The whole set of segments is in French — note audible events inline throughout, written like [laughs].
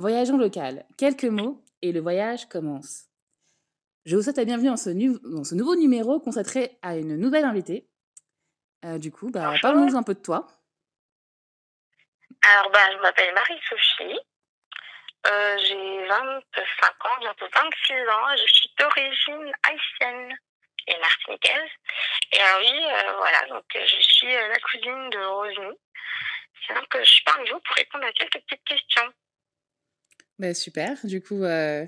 Voyageons local. Quelques mots et le voyage commence. Je vous souhaite la bienvenue dans ce, nu dans ce nouveau numéro consacré à une nouvelle invitée. Euh, du coup, bah, parlons nous un peu de toi. Alors, bah, je m'appelle Marie-Souchi. Euh, j'ai 25 ans, bientôt 26 ans. Je suis d'origine haïtienne et martiniquaise. Et ah oui, euh, voilà, donc euh, je suis euh, la cousine de Rosny. C'est donc je suis parmi vous pour répondre à quelques petites questions. Bah, super. Du coup, euh,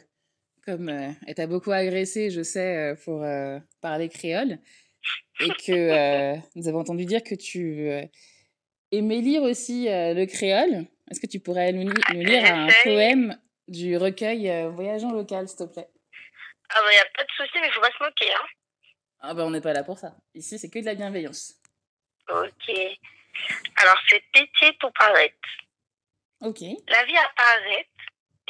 comme euh, elle beaucoup agressé, je sais, euh, pour euh, parler créole, et que euh, [laughs] nous avons entendu dire que tu euh, aimais lire aussi le créole, est-ce que tu pourrais nous, nous lire un poème du recueil Voyageant local, s'il te plaît Ah, bah, y a pas de souci, mais faut pas se moquer, hein. Ah, bah, on n'est pas là pour ça. Ici, c'est que de la bienveillance. Ok. Alors, c'est Pitié pour paraître. Ok. La vie apparaît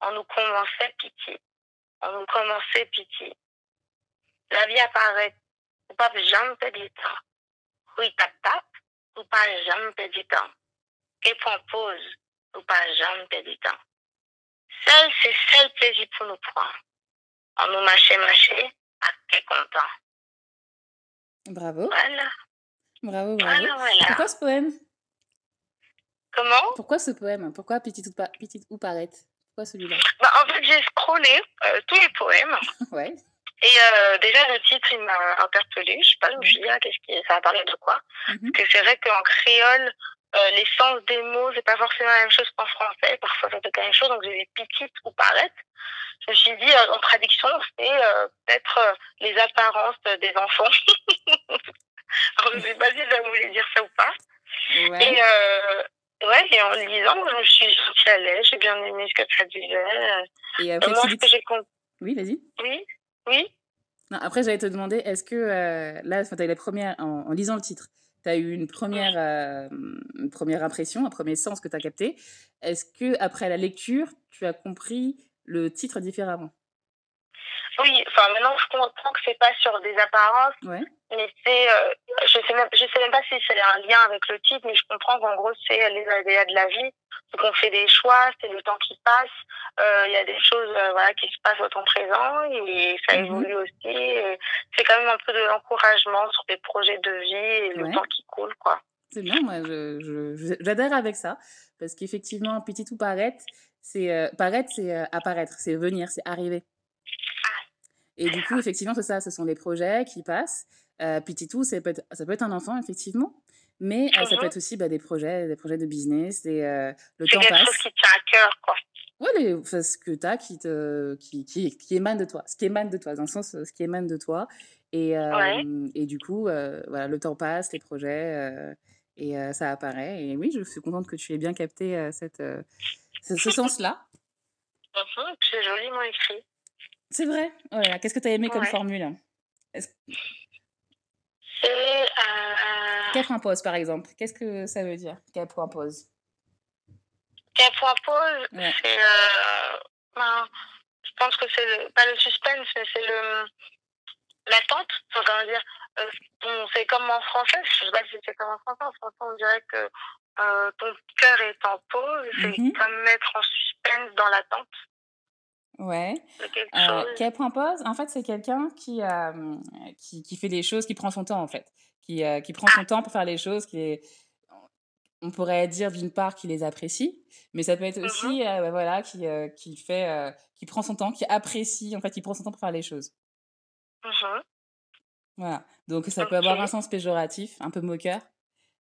on nous commençait pitié. On nous commençait pitié. La vie apparaît. Ou pas jamais perdre du temps. Oui, tap tap. Ou pas jamais perdre du temps. Et prend pause. Ou pas jamais perdre du temps. Seul, c'est seul plaisir pour nous prendre. On nous marchait, marchait, à quel content. Bravo. Voilà. Bravo, bravo. Voilà, voilà. Pourquoi ce poème Comment Pourquoi ce poème Pourquoi Petite ou, pa Petite ou Parette Pourquoi celui-là bah, En fait, j'ai scrollé euh, tous les poèmes. [laughs] ouais. Et euh, déjà, le titre, il m'a interpellée. Je ne sais pas, je me suis dit, ah, qu'est-ce qui... ça va parler de quoi mm -hmm. Parce que c'est vrai qu'en créole, euh, sens des mots, c'est pas forcément la même chose qu'en français. Parfois, ça peut être la même chose. Donc, j'ai des petites ou paraître. Je me suis dit, euh, en traduction, c'est euh, peut-être euh, les apparences des enfants. [laughs] Alors, je sais pas si ça voulait dire ça ou pas. Ouais. Et, euh, Ouais, et en lisant, je me suis sentie à l'aise, j'ai bien aimé ce que ça disait. Et euh, après, Moi, que Oui, vas-y. Oui, oui. Non, après, j'allais te demander, est-ce que euh, là, tu as eu la première, en, en lisant le titre, Oui, enfin maintenant je comprends que c'est pas sur des apparences, ouais. mais c'est, euh, je sais même, je sais même pas si c'est un lien avec le titre, mais je comprends qu'en gros c'est les aléas de la vie, donc on fait des choix, c'est le temps qui passe, euh, il euh, y a des choses euh, voilà qui se passent au temps présent et ça mhm. évolue mmh. aussi. C'est quand même un peu de l'encouragement sur les projets de vie et le temps qui coule quoi. C'est bien, moi j'adhère avec ça parce qu'effectivement petit ou paraître, c'est euh, paraître, c'est euh, apparaître, c'est venir, c'est arriver. Et du coup, effectivement, c'est ça, ce sont des projets qui passent. Euh, Pititou, ça peut, être, ça peut être un enfant, effectivement, mais mm -hmm. ça peut mhm. être aussi bah, des projets, des projets de business, et, euh, le temps passe. C'est quelque chose qui tient à cœur, quoi. Oui, enfin, ce que tu as qui, te, qui, qui, qui, émane de toi, ce qui émane de toi, dans le sens, ce qui émane de toi. Et, euh, ouais. et du coup, euh, voilà, le temps passe, les projets, euh et euh, ça apparaît. Et oui, je suis contente que tu aies bien capté cette, ce, ce sens-là. [laughs] Mm -hmm, C'est joliment écrit. C'est vrai oh là là, Qu'est-ce que tu as aimé ouais. comme formule C'est. Euh... Cap impose, par exemple. Qu'est-ce que ça veut dire, cap impose Cap impose, ouais. c'est. Euh... Ben, je pense que c'est le... pas le suspense, mais c'est le l'attente, enfin, comment dire, euh, on fait comme en français, je sais pas si c'est comme en français, en français on dirait que euh, ton cœur est en pause, mm -hmm. comme mettre en suspense dans l'attente. Ouais. Euh, qu'elle prend pause, en fait, c'est quelqu'un qui, euh, qui, qui, fait des choses, qui prend son temps, en fait. Qui, euh, qui prend ah! son temps pour faire les choses, qui est... on pourrait dire d'une part qu'il les apprécie, mais ça peut être mmh aussi, bah, euh, voilà, qui, euh, qui fait, euh, qui prend son temps, qui apprécie, en fait, qui prend son temps pour faire les choses. Uh-huh. Voilà. Donc, ça okay. peut avoir un sens péjoratif, un peu moqueur,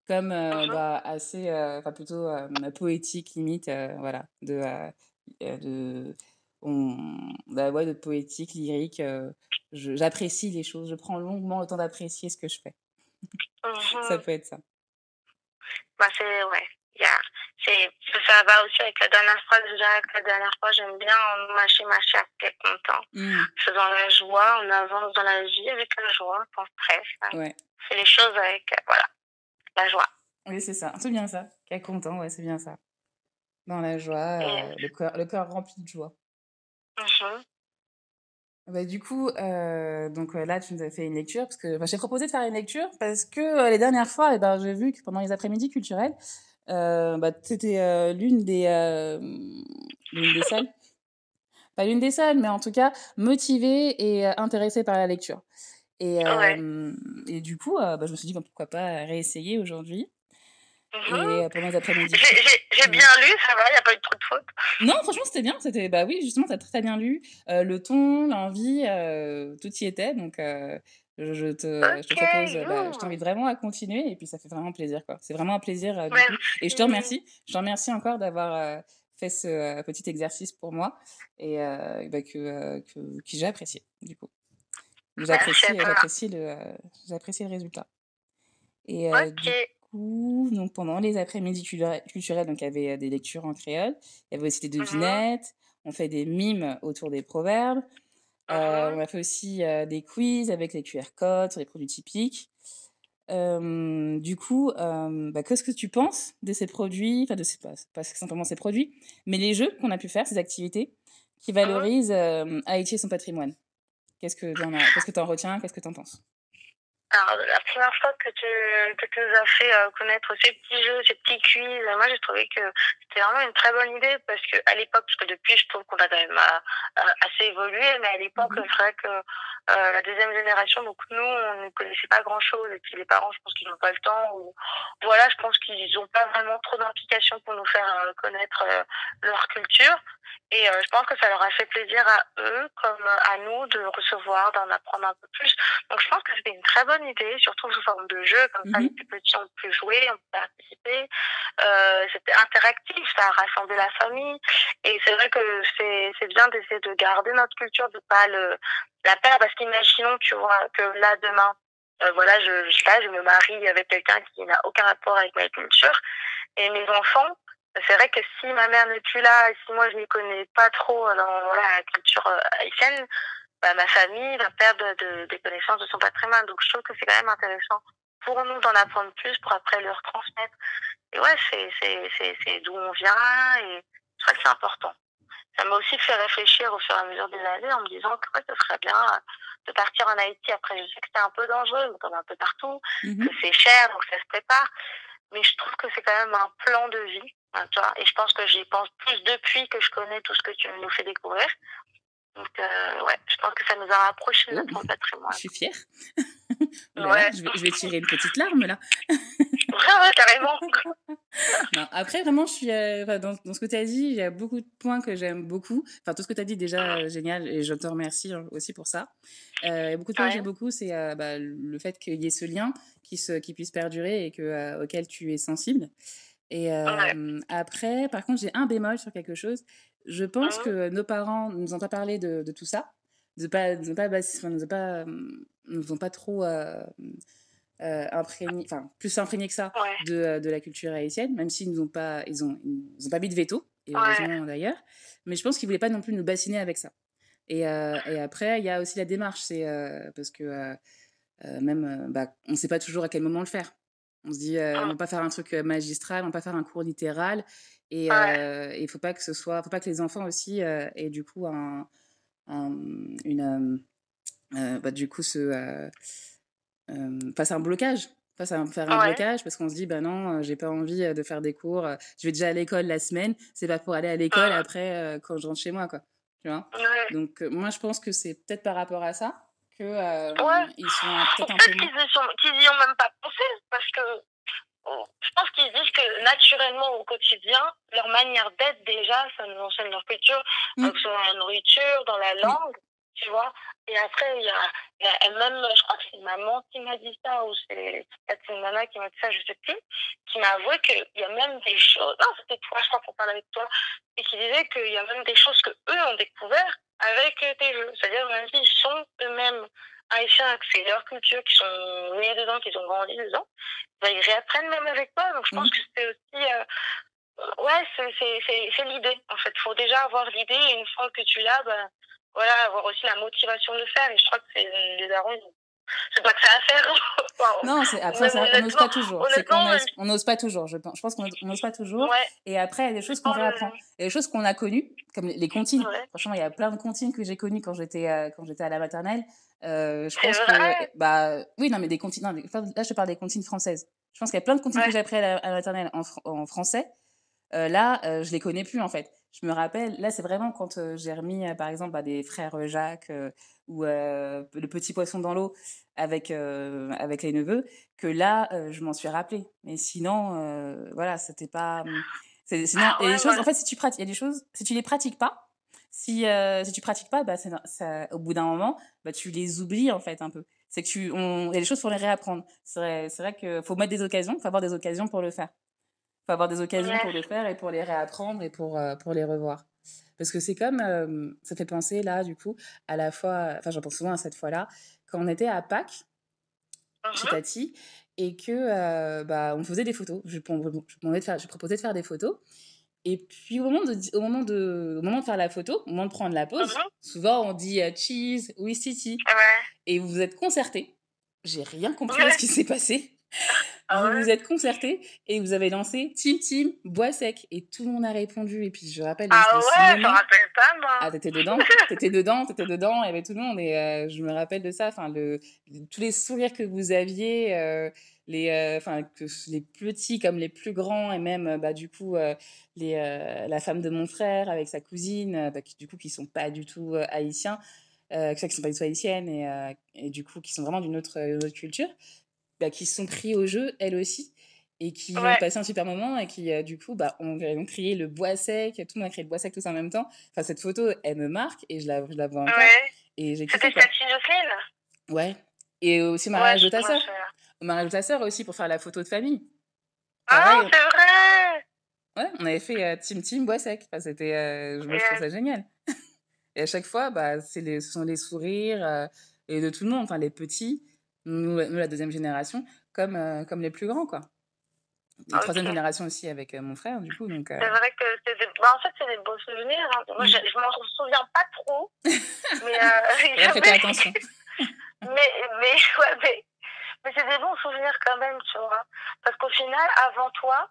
comme uh-huh. bah, assez, enfin, plutôt poétique, limite, voilà, de. de on, la voix de poétique, lyrique. Euh, J'apprécie les choses. Je prends longuement le temps d'apprécier ce que je fais. Mmh. [laughs] ça mhm. peut être ça. Bah c'est ouais. Yeah. C'est ça va aussi avec la dernière phrase. Déjà avec la dernière fois, j'aime bien mâcher mâcher à tête content. Mmh. C'est dans la joie, on avance dans la vie avec la joie, sans stress. Hein. Ouais. C'est les choses avec euh, voilà la joie. Oui c'est ça, c'est bien ça. Qu'à content, ouais c'est bien ça. Dans la joie, euh, le corps le corps rempli de joie. Mmh. Bah, du coup, euh, donc euh, là, tu nous as fait une lecture parce que bah, j'ai proposé de faire une lecture parce que euh, les dernières fois, eh ben, j'ai vu que pendant les après-midi culturels, euh, bah, c'était euh, l'une des l'une des seules, [laughs] pas l'une des seules, mais en tout cas motivée et intéressée par la lecture. Et, ouais. et du coup, bah, je me suis dit pourquoi pas réessayer aujourd'hui. Mmh. Et euh, pendant les après-midi. J'ai j'ai bien lu, ça va, il n'y a pas eu trop de fautes. Non, franchement, c'était bien. C'était, bah oui, justement, t'as très, très bien lu. Euh, le ton, l'envie, euh, tout y était. Donc, euh, je, je, te, okay. je, te, propose, bah, je t'invite vraiment à continuer. Et puis, ça fait vraiment plaisir, quoi. C'est vraiment un plaisir. Euh, du coup. Et je te remercie. Mhm. Je te remercie encore d'avoir euh, fait ce petit exercice pour moi et euh bah, que, que, que j'ai apprécié, du coup. J'apprécie, j'apprécie, le, j'apprécie le résultat. Et, okay. du coup, donc pendant les après-midi culturels, donc il y avait euh, des lectures en créole, il y avait aussi des mmh devinettes, on fait des mimes autour des proverbes, mmh euh, on a fait aussi euh, des quiz avec les QR codes sur les produits typiques. Euh, du coup, bah, qu'est-ce que tu penses de ces produits, enfin de ces, pas, pas simplement ces produits, mais les jeux qu'on a pu faire, ces activités qui mmh valorisent Haïti et son patrimoine Qu'est-ce que tu en, qu que en, retiens Qu'est-ce que tu en penses Alors, la première fois que tu, que tu nous as fait euh, connaître ces petits jeux, ces petits quiz, moi, j'ai trouvé que c'était vraiment une très bonne idée parce que à l'époque, parce que depuis, je trouve qu'on a quand même euh, euh, assez évolué, mais à l'époque, mhm. c'est vrai que euh, la deuxième génération, donc nous, on ne connaissait pas grand-chose et puis les parents, je pense qu'ils n'ont pas le temps ou voilà, je pense qu'ils n'ont pas vraiment trop d'implication pour nous faire euh, connaître euh, leur culture. Et euh, je pense que ça leur a fait plaisir à eux comme à nous de recevoir, d'en apprendre un peu plus. Donc je pense que c'était une très bonne bonne idée, surtout sous forme de jeu, comme mm -hmm. ça mhm. les plus petits ont pu jouer, ont pu participer. Euh, c'était interactif, ça a rassemblé la famille. Et c'est vrai que c'est bien d'essayer de garder notre culture, de pas le, la perdre, parce qu'imaginons, tu vois, que là, demain, euh, voilà, je, je, sais pas, je me marie avec quelqu'un qui n'a aucun rapport avec ma culture, et mes enfants, c'est vrai que si ma mère n'est plus là, si moi je m'y connais pas trop dans voilà, la culture euh, haïtienne, euh, bah, ma famille va perdre de, de, des connaissances de son patrimoine. Donc je trouve que c'est quand même intéressant pour nous d'en apprendre plus pour après leur transmettre. Et ouais, c'est d'où on vient et je crois que c'est important. Ça m'a aussi fait réfléchir au fur et à mesure des années en me disant que ouais, ce serait bien de partir en Haïti. Après, je sais que c'est un peu dangereux, comme un peu partout, mm -hmm. que c'est cher, donc ça se prépare. Mais je trouve que c'est quand même un plan de vie. Hein, tu vois et je pense que j'y pense plus depuis que je connais tout ce que tu nous fais découvrir, Donc, euh, ouais, je pense que ça nous a rapprochés de notre patrimoine. Je suis fière. [laughs] Oh là, ouais. je, vais, je, vais, tirer une petite larme là. [laughs] ouais, ouais, carrément. [laughs] non, après, vraiment, je suis, euh, dans, dans, ce que tu as dit, il y a beaucoup de points que j'aime beaucoup. Enfin, tout ce que tu as dit, déjà, euh, génial, et je te remercie hein, aussi pour ça. Euh, beaucoup de points ouais. que j'aime beaucoup, c'est euh, bah, le fait qu'il y ait ce lien qui, se, qui puisse perdurer et que, euh, auquel tu es sensible. Et ouais. après, par contre, j'ai un bémol sur quelque chose, Je pense ah. que nos parents nous ont pas parlé de, de tout ça, ne pas, nous ont pas, nous ont pas, euh, nous ont pas trop euh, euh, imprégné, enfin plus imprégné que ça ouais. de, euh, de, la culture haïtienne, même s'ils nous ont pas, ils ont, ils ont pas mis de veto et heureusement ouais. d'ailleurs. Mais je pense qu'ils voulaient pas non plus nous bassiner avec ça. Et, euh, et après, il y a aussi la démarche, c'est euh, parce que même, bah, on ne sait pas toujours à quel moment le faire. On se dit, euh, ah. on va pas faire un truc magistral, on va pas faire un cours littéral. Et il ouais. ne faut pas que ce soit, faut pas que les enfants aussi aient du coup un, un une, bah, du coup ce, euh face à un blocage face à faire un ouais. blocage parce qu'on se dit bah non j'ai pas envie de faire des cours je vais déjà à l'école la semaine c'est pas pour aller à l'école ah. après euh, quand je rentre chez moi quoi tu vois ouais. donc euh, moi je pense que c'est peut-être par rapport à ça que euh, ouais. ils sont peut-être un peu qu'ils y, sont... qu y, ont même pas pensé parce que je pense qu'ils disent que naturellement au quotidien, leur manière d'être déjà, ça nous enseigne leur culture, mmh. que ce soit dans la nourriture, dans la mm. langue, mmh. tu vois. Et après, il y a, y a, même, je crois que c'est maman qui m'a dit ça, ou c'est une nana qui m'a dit ça, je sais plus, qui m'a avoué qu'il y a même des choses, non, c'était toi, je crois qu'on parlait avec toi, et qui disait qu'il y a même des choses que eux ont découvert avec tes jeux. C'est-à-dire, même s'ils sont eux-mêmes Aïcha, c'est leur culture, qui sont nés dedans, qui ont grandi dedans, bah, ils réapprennent même avec moi Donc je pense mmh. que c'est aussi. Euh, ouais, c'est l'idée, en fait. Il faut déjà avoir l'idée, et une fois que tu l'as, bah, voilà, avoir aussi la motivation de le faire. Et je crois que c'est les darons, c'est pas que ça à faire. [laughs] Wow. Non, c'est, après, ça, on n'ose pas toujours. C'est qu'on n'ose pas toujours, je pense. Je pense qu'on n'ose pas toujours. Ouais. Et après, il y a des choses qu'on réapprend. Il y a des choses qu'on a connues, comme les comptines. Ouais. Franchement, il y a plein de comptines que j'ai connues quand j'étais, euh, quand j'étais à la maternelle. Euh, je pense que. Bah, oui, non, mais des comptines. Non, là, je te parle des comptines françaises. Je pense qu'il y a plein de comptines que j'ai appris à la, à la maternelle en, en français. Euh, là, euh, je les connais plus en fait. Je me rappelle, là, c'est vraiment quand euh, j'ai remis, euh, par exemple, à des frères euh, Jacques euh, ou le petit poisson dans l'eau avec, avec les neveux, que là, je m'en suis rappelé. Mais sinon, voilà, c'était pas. Mmh, c'est, sinon, ah, ouais, et les choses, ouais. en fait, si tu pratiques, il y a des choses, si tu les pratiques pas, si, si tu pratiques pas, bah, ça, ça, au bout d'un moment, bah, tu les oublies en fait un peu. C'est que tu, on, il y a des choses faut les réapprendre. C'est vrai, c'est vrai que faut mettre des occasions, il faut avoir des occasions pour le faire. faut avoir des occasions ouais. pour le faire et pour les réapprendre et pour, euh, pour les revoir. Parce que c'est comme, euh, ça fait penser là, du coup, à la fois, enfin j'en pense souvent à cette fois-là, quand on était à Pâques, uh -huh. chez uh-huh. Tati, et que euh, bah, on faisait des photos. Je, je, de je proposais de faire des photos. Et puis au moment, de, au, moment de, au moment de faire la photo, au moment de prendre la pause, uh -huh. souvent on dit euh, cheese, oui, si, si. Ouais. Et vous vous êtes concerté. J'ai rien compris ouais. à ce qui s'est passé. ah ouais. vous vous êtes concerté et vous avez lancé Team Team Bois Sec. Et tout le monde a répondu. Et puis, je rappelle. Ah ouais, je me rappelle pas, moi. Ah, t'étais dedans, [laughs] t'étais dedans, t'étais dedans. Il y avait tout le monde. Et euh, je me rappelle de ça. Enfin, le, tous les sourires que vous aviez. Euh, les euh, enfin euh, que les petits comme les plus grands et même bah du coup euh, les euh, la femme de mon frère avec sa cousine euh, bah, qui, du coup qui sont pas du tout euh, haïtiens qui sont pas du tout haïtiennes et, et, du coup qui sont vraiment d'une autre, autre, culture bah, qui se sont pris au jeu, elles aussi, et qui ouais. ont passé un super moment, et qui, euh, du coup, bah, ont, ont, créé le bois sec, tout le monde a créé le bois sec tous en même temps. Enfin, cette photo, elle me marque, et je la, je la vois encore. Ouais. C'était Stacy Jocelyne Ouais. Et aussi au mariage ouais, de ta sœur. Au mariage de ta sœur aussi, pour faire la photo de famille. Ah, oh, c'est vrai Ouais, on avait fait euh, Team Team Bois Sec. Enfin, c'était, euh, je, yeah. trouve ça génial. [laughs] et à chaque fois, bah, les, ce sont les sourires euh, et de tout le monde, enfin, les petits, nous, nous, la deuxième génération, comme, euh, comme les plus grands, quoi. La okay. troisième génération aussi avec euh, mon frère, du coup. Donc, euh... C'est vrai que c'est des... Bah, en fait, c'est des beaux souvenirs. Hein. Moi, je, je m'en souviens pas trop. [laughs] mais, euh, mais... [laughs] attention. [laughs] mais, mais, ouais, mais, mais c'est des bons souvenirs quand même, tu vois. Parce qu'au final, avant toi,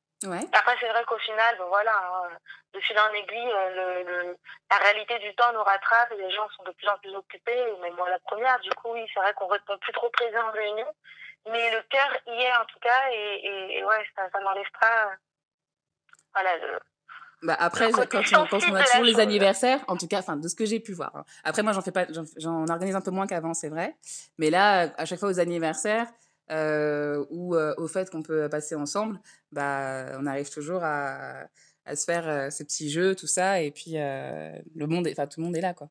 Ouais. Après, c'est vrai qu'au final, voilà, hein, de fil en aiguille, euh, le, le, la réalité du temps nous rattrape et les gens sont de plus en plus occupés, mais moi la première. Du coup, oui, c'est vrai qu'on répond plus trop présent en réunion, mais le cœur y est en tout cas, et, et, et ouais, ça, ça n'enlève pas. Voilà, le, bah après, quand, on, quand on a toujours les anniversaires, en tout cas, enfin, de ce que j'ai pu voir. Après, moi, j'en fais pas, j'en organise un peu moins qu'avant, c'est vrai. Mais là, à chaque fois aux anniversaires, euh, ou euh, au fait qu'on peut passer ensemble, bah, on arrive toujours à, à se faire euh, ces petits jeux, tout ça, et puis euh, le monde, enfin tout le monde est là, quoi.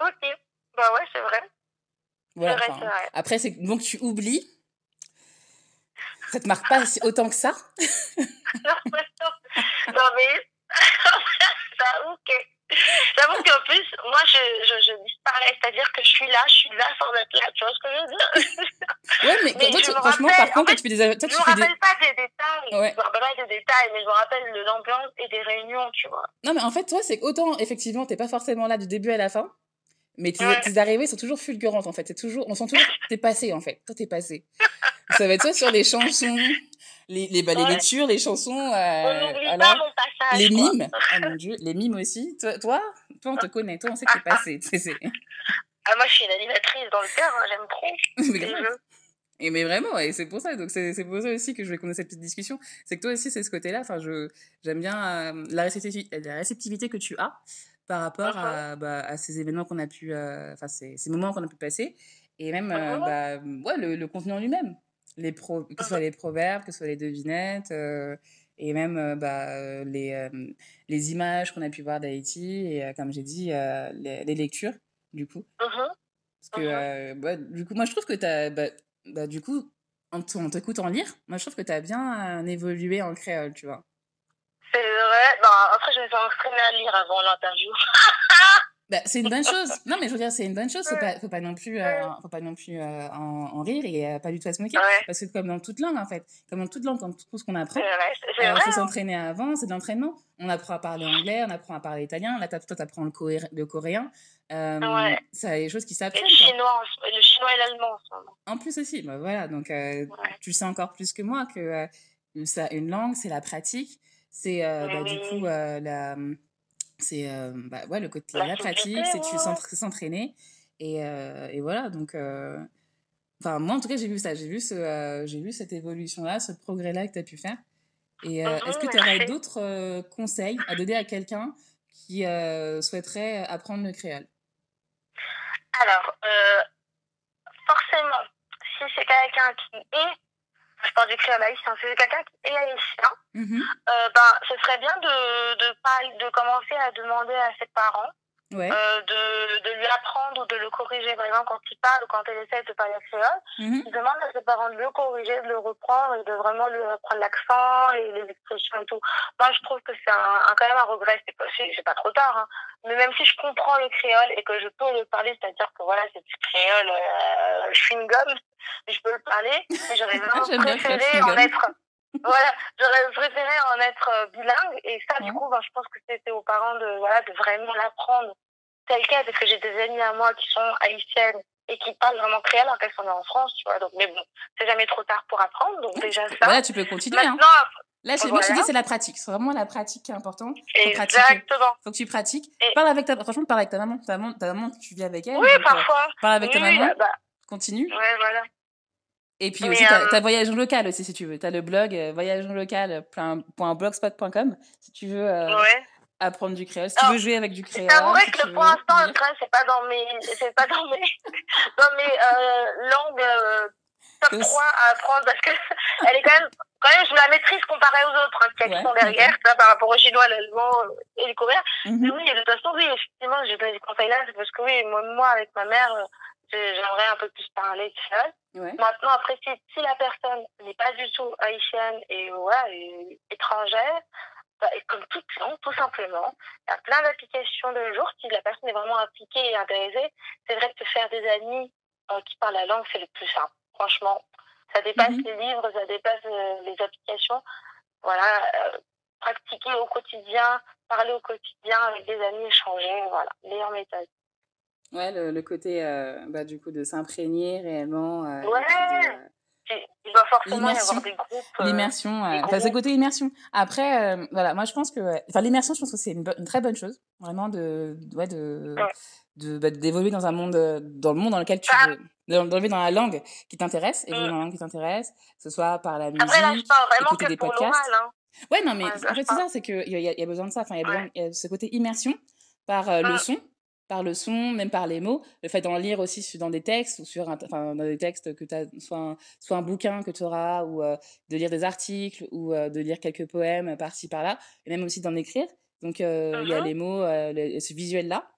Ok, bah ouais, c'est vrai. Voilà, vrai, vrai. Après, c'est bon que tu oublies. Ça te marque pas autant que ça. [laughs] non, mais non, mais [laughs] ça, ok. [laughs] J'avoue qu'en plus, moi, je, je, je disparais. C'est-à-dire que je suis là, je suis là sans être là. Tu vois ce que je veux dire Ouais, mais, mais toi, tu, franchement, rappelle, par contre, quand tu fais des. Toi, je tu me fais rappelle des... pas des détails. Ouais. Je me rappelle pas des détails, mais je me rappelle de l'ambiance et des réunions, tu vois. Non, mais en fait, toi, c'est autant, effectivement, t'es pas forcément là du début à la fin. Mais tes, ouais. tes arrivées sont toujours fulgurantes en fait. C'est toujours, on sent toujours t'es passé en fait. Toi t'es passé. Ça va être soit sur les chansons, les, les, bah, les ouais. lectures, les chansons. Euh, on alors, pas mon passage, les mimes. oh mon dieu, les mimes aussi. Toi, toi, toi on te connaît, toi, on sait que t'es [laughs] passé. Ah, moi, je suis une animatrice dans le cœur, hein, j'aime trop. [laughs] les jeux. Et mais vraiment, et c'est pour ça, donc c'est pour ça aussi que je voulais qu'on ait cette petite discussion. C'est que toi aussi, c'est ce côté-là. Enfin, je j'aime bien euh, la, réceptivité, la réceptivité que tu as par rapport uh -huh. à, uh-huh. bah, à, ces événements qu'on a pu, euh, enfin euh, ces, ces, moments qu'on a pu passer, et même uh euh, bah, ouais, le, le, contenu en lui-même. Les pro que ce soit les proverbes, que ce soit les devinettes, euh, et même euh, bah, euh, les, euh, les images qu'on a pu voir d'Haïti, et comme j'ai dit, les, les, lectures, du coup. Uh -huh. Parce que, uh -huh. bah, du coup, moi, je trouve que tu as, bah, bah, du coup, en t'écoutant lire, moi, je trouve que tu as bien évolué en créole, tu vois. C'est vrai. Non, après, je me suis entraînée à lire avant l'interview. [laughs] Bah, c'est une bonne chose. Non, mais je veux dire, c'est une bonne chose. Faut pas, faut pas non plus, euh, faut pas non plus euh, en, en, rire et euh, pas du tout à se moquer. Ouais. Parce que comme dans toute langue, en fait, comme dans toute langue, comme tout ce qu'on apprend, il euh, faut s'entraîner avant. C'est de l'entraînement. On apprend à parler anglais, on apprend à parler italien. Là, toi, t'apprends le, coré le coréen. Euh, ouais. Ça, les choses qui s'apprennent. Le chinois, le chinois et l'allemand. En plus aussi, bah, voilà. Donc, euh, ouais. tu sais encore plus que moi que euh, ça, une langue, c'est la pratique, c'est bah, oui. du coup la C'est euh, bah, ouais, le côté la, la pratique, c'est tu s'entraîner. Et, et, voilà, donc. Enfin, moi, en tout cas, j'ai vu ça. J'ai vu, ce, j'ai vu cette évolution-là, ce progrès-là que tu as pu faire. Et est-ce que mmh, tu aurais d'autres conseils à donner à quelqu'un qui souhaiterait apprendre le créole Alors, forcément, si c'est quelqu'un qui est je pense que j'ai à Maïs, hein, c'est quelqu'un qui est haïtien, mm -hmm. euh, ben, ce serait bien de, de, de, de commencer à demander à ses parents ouais. euh, de, de, lui apprendre ou de le corriger. Par exemple, quand il parle ou quand elle essaie de parler à ses mmh. il demande à ses parents de le corriger, de le reprendre et de vraiment lui apprendre l'accent et les expressions et tout. Moi, je trouve que c'est un, un, quand même un regret. C'est pas, pas trop tard. Hein. Mais même si je comprends le créole et que je peux le parler, c'est-à-dire que voilà, c'est du créole euh, chewing-gum, je peux le parler, mais j'aurais [laughs] vraiment préféré en être voilà, j'aurais préféré en être euh, bilingue et ça, du coup, ben, je pense que c'était aux parents de, voilà, de vraiment l'apprendre. tel quel, parce que j'ai des amies à moi qui sont haïtiennes et qui parlent vraiment créole alors qu'elles sont en France, tu vois. Donc, mais bon, c'est jamais trop tard pour apprendre, donc déjà ça. Voilà, tu peux continuer. Maintenant, hein. Là, voilà. moi, je te dis, c'est la pratique. C'est vraiment la pratique qui est importante. Faut Exactement. Faut que tu pratiques. Et... Parle avec ta, franchement, parle avec ta maman. Ta maman, ta maman tu vis avec elle. Oui, donc, euh, parfois. Euh, parle avec ta maman. Bah... Continue. Ouais, voilà. Et puis Mais aussi, euh... t'as as voyage en local aussi, si tu veux. T'as le blog euh, voyage en local.blogspot.com. Si tu veux euh, ouais. apprendre du créole, si tu veux jouer avec du créole. C'est vrai que pour l'instant, le créole, c'est pas dans mes, c'est pas dans mes, [laughs] dans mes euh, langues euh, top 3 à apprendre parce que [laughs] elle est quand même, quand même, je la maîtrise comparée aux autres hein, qui ouais, sont derrière, okay. là, par rapport au chinois, l'allemand et le coréen. Mm -hmm. Mais oui, de toute façon, oui, effectivement, j'ai donné des conseils là, c'est parce que oui, moi, moi avec ma mère, euh, j'aimerais un peu plus parler créole. Ouais. Maintenant, après, si, si la personne n'est pas du tout haïtienne et, ouais, et étrangère, et comme toute science, tout simplement. Il y a plein d'applications de nos jours. Si la personne est vraiment impliquée et intéressée, c'est vrai que se faire des amis euh, qui parlent la langue, c'est le plus simple. Franchement, ça dépasse mmh. les livres, ça dépasse euh, les applications. Voilà, euh, pratiquer au quotidien, parler au quotidien avec des amis, échanger, voilà, meilleure méthode. Ouais, le, le côté euh, bah, du coup de s'imprégner réellement. Euh, ouais. Euh, il euh, côté immersion. Après, euh, voilà, moi je pense que, enfin, l'immersion, je pense que c'est une, une, très bonne chose, vraiment de, ouais, de, ouais. de bah, d'évoluer dans un monde, euh, dans le monde dans lequel tu ah. veux, d'enlever dans la langue qui t'intéresse, mm. évoluer mm. dans la langue qui t'intéresse, que ce soit par la musique, Après, là, je parle vraiment écouter que des pour podcasts. Hein. Ouais, non, mais ouais, en fait, c'est ça, c'est qu'il y, y, a besoin de ça. Enfin, il y, y a ce côté immersion par le mm. son par le son, même par les mots, le fait d'en lire aussi dans des textes ou sur un, enfin, dans des textes que tu as, soit un, soit un bouquin que tu auras, ou euh, de lire des articles, ou euh, de lire quelques poèmes par-ci, par-là, et même aussi d'en écrire. Donc, euh, uh -huh. il y a uh-huh. les mots, euh, le, ce visuel-là,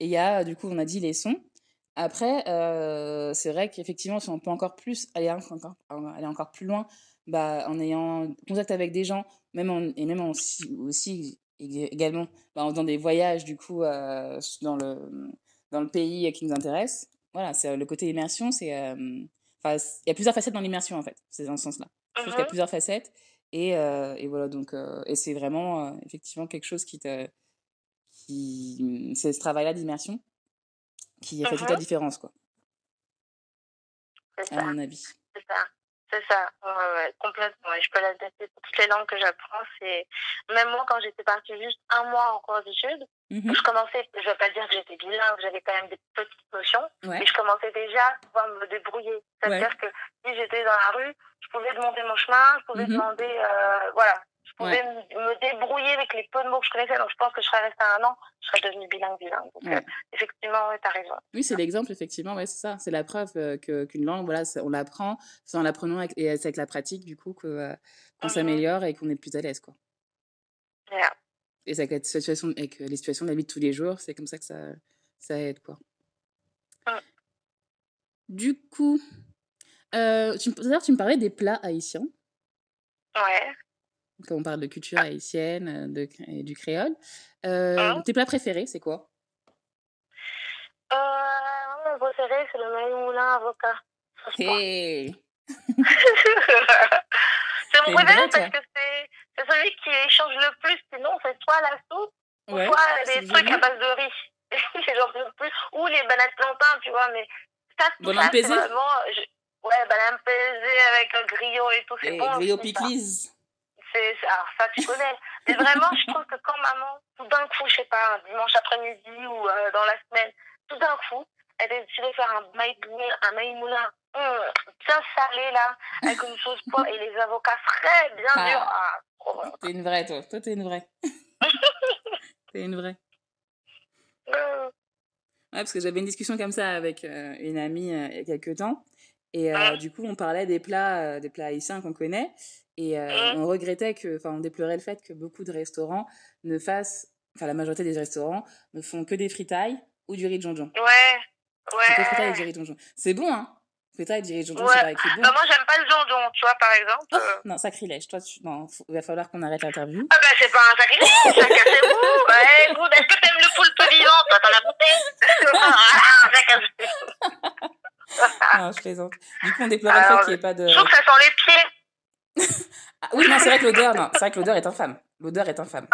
et il y a, euh, du coup, on a dit les sons. Après, euh, c'est vrai qu'effectivement, si on peut encore plus aller encore, aller encore plus loin, bah, en ayant contact avec des gens, même en, et même en, aussi, également bah, en faisant des voyages du coup euh, dans, le, dans le pays euh, qui nous intéresse. Voilà, c'est euh, le côté immersion, c'est il euh, y a plusieurs facettes dans l'immersion en fait, c'est dans ce sens-là. Je trouve uh -huh. qu'il y a plusieurs facettes et, euh, et voilà donc euh, et c'est vraiment effectivement quelque chose qui te qui mmh, c'est ce travail-là d'immersion qui uh -huh. fait toute la différence quoi. À mon avis. ça. C'est ça, ouais, ouais, complètement. Et je peux l'adapter pour toutes les langues que j'apprends. C'est même moi quand j'étais partie juste un mois en cours d'études, mm -hmm. je commençais. Je vais pas dire que j'étais bilingue, j'avais quand même des petites notions, ouais. mais je commençais déjà à pouvoir me débrouiller. C'est-à-dire que si j'étais dans la rue, je pouvais demander mon chemin, je pouvais mm -hmm. demander, euh, voilà, je pouvais ouais. me débrouiller avec les peu de mots que je connaissais. Donc, je pense que je serais restée un an, je serais devenue bilingue, bilingue. Donc, ouais. euh, effectivement, ouais, tu as raison. Oui, c'est l'exemple, effectivement, ouais, c'est ça. C'est la preuve euh, que, qu'une langue, voilà, on l'apprend, c'est en l'apprenant avec, et c'est avec la pratique, du coup, que, euh, qu'on mm-hmm. s'améliore et qu'on est plus à l'aise, quoi. Yeah. Et c'est avec, la situation, avec les situations de la vie de tous les jours, c'est comme ça que ça, ça aide, quoi. Mm. Du coup, euh, tu, d'ailleurs, tu me parlais des plats haïtiens. Ouais. quand on parle de culture haïtienne euh, de, et du créole. Ah. Euh, oh. Tes plats préférés, c'est quoi euh, Mon préféré, c'est le maïmoulin avocat. Hey. [laughs] c'est mon préféré parce que c'est celui qui échange le plus. Sinon, c'est soit la soupe, ouais, soit des trucs bien. à base de riz. J'en [laughs] peux plus. Ou les bananes plantains, tu vois. Mais ça, bon là, vraiment... Je... Ouais, bananes pesées avec un grillot et tout. c'est hey, eh, bon, grillot piclise. alors ça tu connais. Mais vraiment, je trouve que quand maman, tout d'un coup, je sais pas, un dimanche après-midi ou euh, dans la semaine, tout d'un coup, elle a décidé de faire un maïmouna, un maïmouna mmh, bien salé là, avec une sauce [laughs] poivre et les avocats frais, bien ah. ah Ah, ah ah T'es une vraie toi, toi t'es une vraie. [laughs] t'es une vraie. ah Ouais, parce que j'avais une discussion comme ça avec euh, une amie euh, il y a quelques temps. Et euh, ah du coup, on parlait des plats, euh, des plats haïtiens qu'on connaît. Et euh, mmh. on regrettait que, enfin, on déplorait le fait que beaucoup de restaurants ne fassent, enfin, la majorité des restaurants ne font que des fritailles ou du riz de jonjon. Ouais, ouais. Que fritailles et du riz de jonjon. C'est bon, hein Fritailles et du riz de jonjon, ouais. c'est vrai que bon. Bah, moi, j'aime pas le jonjon, tu vois, par exemple. Oh, euh... non, sacrilège. Toi, tu... non, faut... il va falloir qu'on arrête l'interview. Ah, bah, c'est pas un sacrilège, chacun ses goûts. [laughs] Ouais, écoute, est-ce que t'aimes le poulpe vivant Toi, t'en as goûté Ah, [laughs] je plaisante. Du coup, on déplorait le fait qu'il n'y ait pas de. Je trouve que ça sent les pieds. ah oui, non, c'est vrai que l'odeur, non, c'est vrai que l'odeur est infâme. L'odeur est infâme.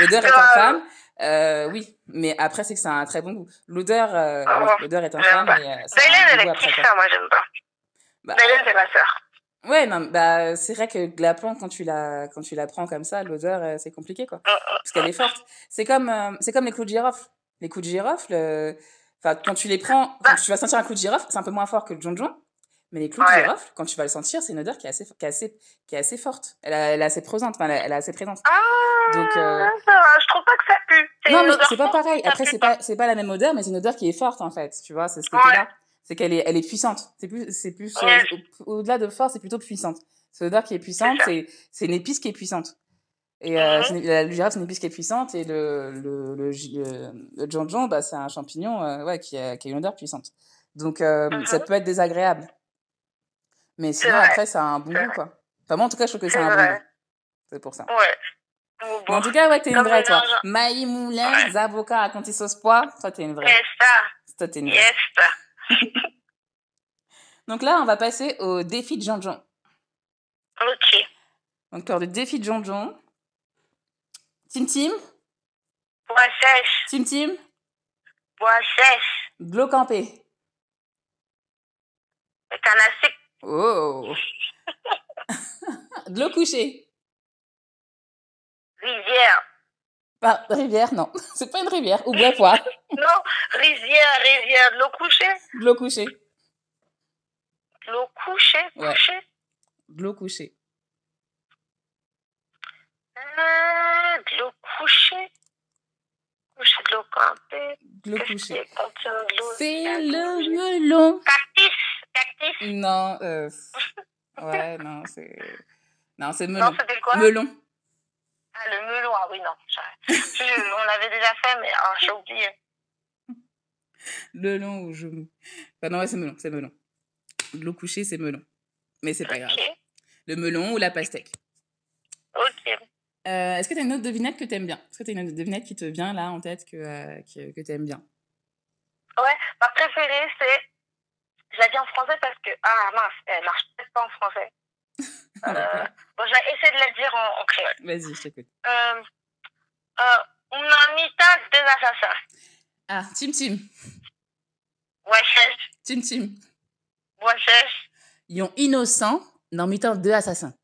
L'odeur est ah infâme. Euh, oui, mais après, c'est que ça a un très bon goût. L'odeur, euh, oh, oui, ah l'odeur est infâme. Pas. Mais, euh, ça Bélène, elle est petite, ça, moi, j'aime pas. Bah, Bélène, c'est ma soeur. Ouais, non, bah, c'est vrai que la plante, quand tu la, quand tu la prends comme ça, l'odeur, euh, c'est compliqué, quoi. Mm, mm. Parce qu'elle est forte. C'est comme, euh, c'est comme les clous de girofle. Les clous de girofle, euh, enfin, quand tu les prends, quand tu vas sentir un clou de girofle, c'est un peu moins fort que le jonjon. Mais les clous ouais. de girofle, quand tu vas le sentir, c'est une odeur qui est assez, qui est assez, qui est assez forte. Elle, a, elle est assez présente. Enfin, elle est assez présente. Ah, Donc, euh... ça va. Je trouve pas que ça pue. Non, mais c'est pas pareil. Après, c'est pas, c'est pas la même odeur, mais c'est une odeur qui est forte, en fait. Tu vois, c'est ce côté-là. Ouais. C'est qu'elle est, elle est puissante. C'est plus, c'est plus, ouais. Euh, au-delà de force, c'est plutôt puissante. C'est l'odeur qui est puissante, c'est, c'est une épice qui est puissante. Et euh, mmh. une, la, girafe, c'est une épice qui est puissante. Et le, le, le, le, le jonjon, bah, c'est un champignon euh, ouais, qui, a, qui a une odeur puissante. Donc, euh, mmh. ça mm-hmm. peut être désagréable. Mais sinon, après, ça a un bon goût, quoi. Enfin, moi, en tout cas, je trouve que ça un bon goût. C'est pour ça. Ouais. Bon, en tout cas, ouais, t'es une vraie, toi. Maï Moulin, ouais. Zaboka, à Conti Sauce Pois, toi, t'es une vraie. Yes, ça. Toi, t'es une vraie. Yes, [laughs] Donc là, on va passer au défi de Jean-Jean. Ok. Donc, le défi de Jean-Jean. Tim Tim. Bois sèche. Tim Tim. Bois sèche. Canastique. Oh. de l'eau couchée. Rivière. Pas ah, rivière, non. [laughs] C'est pas une rivière. Ou bois [laughs] non, rivière, rivière. De l'eau couchée. De l'eau couchée. De l'eau couchée, Cactus. Non, euh, [laughs] ouais, non, c'est. Non, c'est melon. Non, c'était quoi Melon. Ah, le melon, ah oui, non. Je, on l'avait déjà fait, mais ah, j'ai oublié. Le long ou je. Enfin, non, ouais, c'est melon, c'est melon. L'eau couchée, c'est melon. Mais c'est pas okay. grave. Le melon ou la pastèque. Ok. Euh, Est-ce que tu as une autre devinette que tu aimes bien Est-ce que tu as une autre devinette qui te vient là en tête que, euh, que, que tu aimes bien Ouais, ma préférée, c'est Je la dis en français parce que, ah mince, elle marche peut-être pas en français. [laughs] euh, bon, je vais essayer de la dire en, en créole. Vas-y, je t'écoute. Euh, euh, una mitad deux assassins. Ah, Tim Tim. Wesh. Tim Tim. Wesh. Ils ont innocent, dans mitad deux assassins.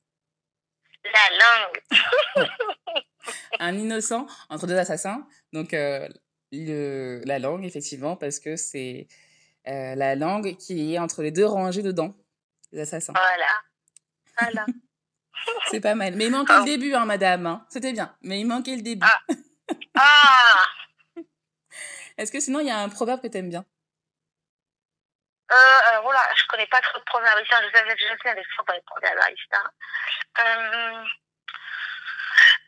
La langue. ouais. Un innocent entre deux assassins. Donc, euh, le, la langue, effectivement, parce que c'est Euh, la langue qui est entre les deux rangées de dents des assassins. Voilà. Voilà. [laughs] c'est pas mal. Mais il manquait oh. le ah. début, hein, madame. Hein. C'était bien. Mais il manquait le début. Ah. [laughs] ah. Est-ce que sinon, il y a un proverbe que tu aimes bien euh, euh alors voilà, je connais pas trop de proverbes ici. Je savais que je sais, mais je pas les proverbes ici. Euh,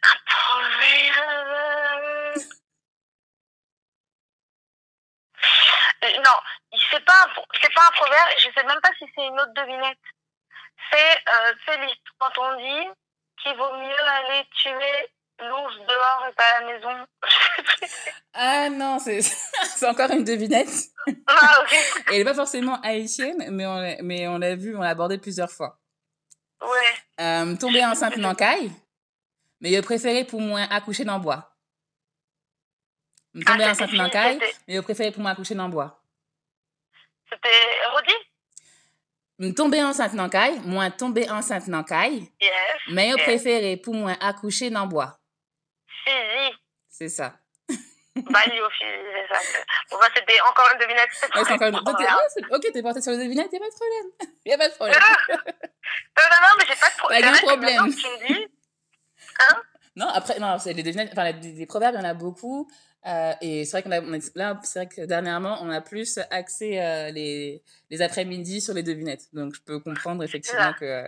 un proverbe. Euh, non, c'est pas c'est pas un proverbe je sais même pas si c'est une autre devinette c'est euh, quand on dit qu'il vaut mieux aller tuer l'ours dehors et pas à la maison [laughs] ah non c'est [laughs] c'est encore une devinette ah, okay. et [laughs] elle est pas forcément haïtienne mais on mais on l'a vu on l'a abordé plusieurs fois ouais euh, tomber enceinte n'encaille mais il préféré pour moi accoucher dans bois tomber ah, enceinte n'encaille mais il préféré pour moi accoucher dans le bois ah, C'était redit. Tomber enceinte dans caille, moi tomber enceinte dans caille. Yes. Mais yes. préféré pour moi accoucher dans bois. Physique. C'est ça. [laughs] Balio, c'est ça. Pour moi, c'était encore une devinette. Ouais, encore une... Voilà. [laughs] Ah, ok, t'es porté sur les devinettes, y'a pas de problème. [laughs] Y'a pas de problème. Ah! non, non, non, mais j'ai pas de pro... bah, problème. Pas de problème. Tu me dis. Hein? Non, après, non, c'est les devinettes, enfin, les, les proverbes, il y en a beaucoup. Euh, et c'est vrai qu'on a, on a là, c'est vrai que dernièrement, on a plus axé euh, les, les après-midi sur les devinettes. Donc, je peux comprendre effectivement que,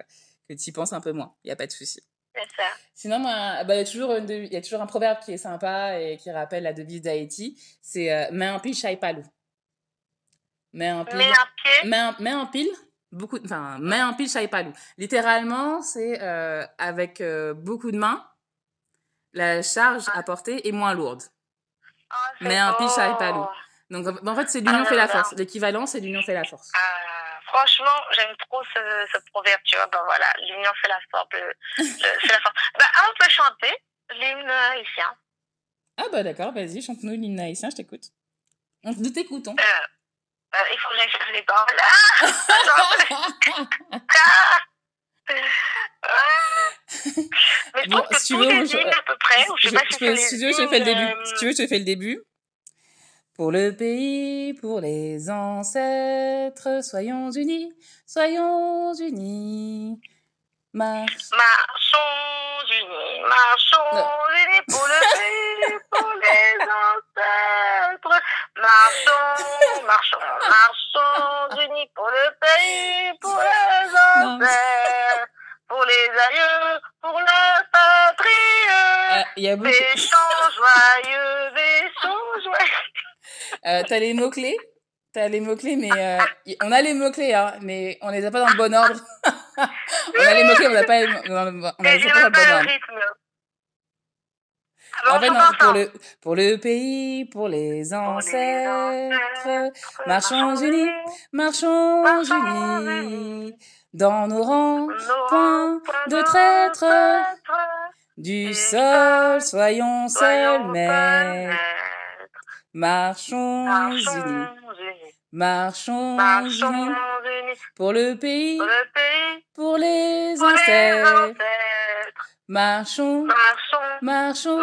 que tu y penses un peu moins. Il n'y a pas de souci. C'est ça. Sinon, ah il bah, y, a toujours une, y a toujours un proverbe qui est sympa et qui rappelle la devise d'Haïti. C'est euh, mets un pile, chaille palou. Mets un pile. Mets un, pied. Mets un, mets pile. Beaucoup, enfin, mets un pile, chaille palou. Littéralement, c'est euh, avec euh, beaucoup de mains, la charge apportée est moins lourde. Oh, ah, mais un beau. piche à palou. Donc en fait, c'est ah, l'union ah, fait la force. L'équivalent, c'est l'union fait la force. Ah, franchement, j'aime trop ce, ce, proverbe, tu vois. Ben voilà, l'union fait la force. Le, le, [laughs] la force. Ben, on peut chanter l'hymne haïtien. Ah bah d'accord, vas-y, chante-nous l'hymne haïtien, je t'écoute. Nous t'écoutons. Euh, euh, il faut que j'aille chercher les paroles. Ah [laughs] [laughs] Ah Mais je bon, pense que si tu veux, je... Euh, à peu près. je je, sais je, pas si peux, si tu veux, je fais le début. Si tu veux, je fais le début. Pour le pays, pour les ancêtres, soyons unis, soyons unis. Marche. Marchons unis, marchons non. unis pour le pays, pour les [laughs] ancêtres. Marchons, marchons, marchons, unis pour le pays, pour les enfers, pour les aïeux, pour la patrie. Il euh, y a beaucoup. joyeux, vaisons joyeux. Euh, T'as les mots-clés T'as les mots-clés, mais euh, on a les mots-clés, hein, mais on les a pas dans le bon ordre. [laughs] on a les mots-clés, on n'a pas, on a, on a les pas dans le bon ordre. Ah bon, en fait, non, pour le, pour le pays, pour les ancêtres, marchons unis, marchons unis, dans nos rangs, point de traître, du sol, soyons seuls maîtres, marchons unis, marchons unis, pour le pays, pour les ancêtres, marchons Marchons,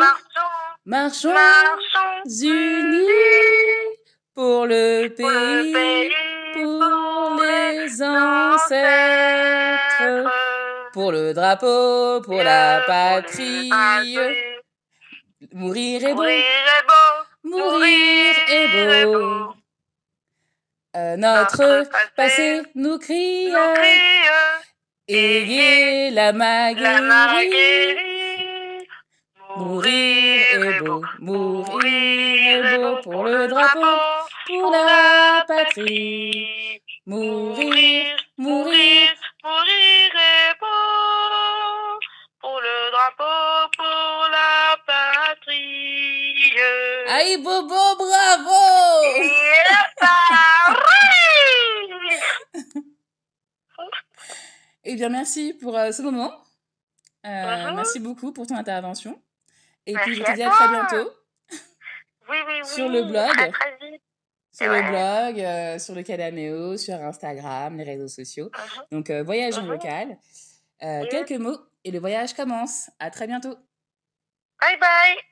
marchons, marchons unis pour le pays, pour les ancêtres, pour le drapeau, pour la patrie. Mourir est beau, mourir est beau. Euh, notre passé nous crie, ayez la Maguerite. Mourir est beau, mourir est beau pour le drapeau, pour la patrie. Mourir, mourir, mourir est beau pour le drapeau, pour la patrie. Aïe Bobo, bravo! Eh bien, merci pour euh, ce moment. Euh, merci beaucoup pour ton intervention. Et Merci puis, je te dis à très bientôt. Oui, oui, [laughs] oui. Sur le blog. À très vite. Sur ouais. le blog, euh, sur le Cadameo, sur Instagram, les réseaux sociaux. Uh mhm. -huh. Donc, euh, voyage uh -huh. en mhm. local. Euh, quelques mots et le voyage commence. À très bientôt. Bye bye.